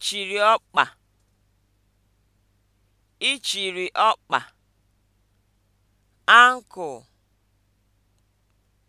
Ichiri ọkpa, Ichiri ọkpa. ankle